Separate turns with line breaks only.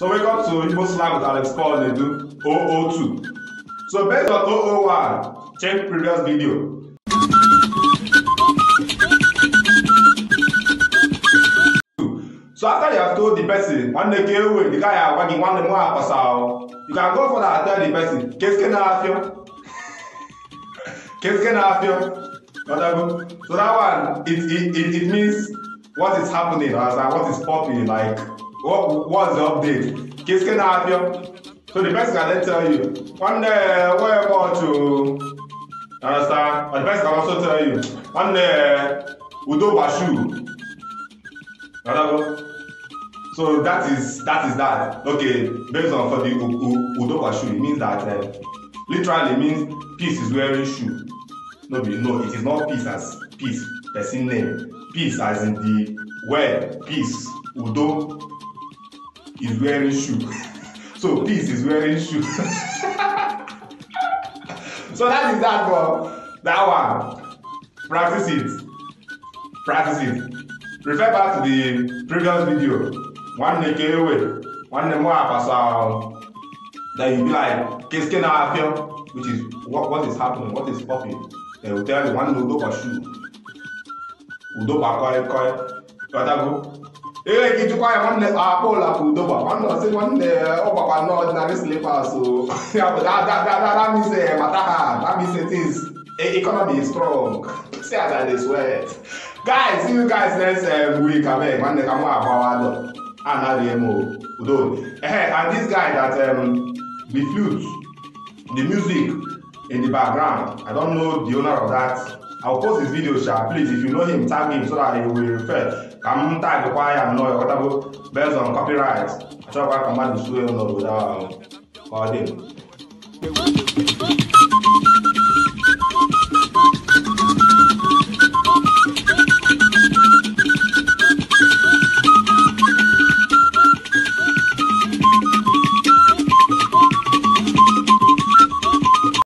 So welcome to Igbo slang with Alex Paul Nedu, 002. So based on 001, check previous video. So after you have told the person, one day get away, the guy are wagging one more pass out. You can go for that and tell the person, can Keske na afio. Keske na afio. Whatever. So that one, it, it, it, it means what is happening, or what is popping, like What what's the update? Kids can help you. So the person can tell you, one day where about to understand? But the person can also tell you, one day Udo Bashu. Understand? So that is that is that. Okay, based on for the Udo Bashu, it means that uh, literally means peace is wearing shoe. No, be no, it is not peace as peace, person name. Peace as in the word, peace, Udo, is wearing shoe so peace is wearing shoe so that is that for that one practice it practice it refer back to the previous video One nwanne ka ewe nwanne m apasa that you be like keske na afio which is what, what is happening what is popping they will tell you one nwanne udokwa shoe udokwa koi koi go ihe gị jụkwa ya nwanne akpa ụlakụ udogba nwanne ọsị nwanne ụgbakwa na ọdịnarị slipas damise mata ha damise tis e, economy is strong see as i dey sweat guys you guys next um, week abeg nwanne ka m agbawa dọ anaghị m udo ehe and this guy that um, the flute the music in the background i don't know the owner of that I'll post his video, Sha. Please, if you know him, tag him so that he will refer. Come tag why I'm not Whatever based on copyright. I try to command the studio without calling.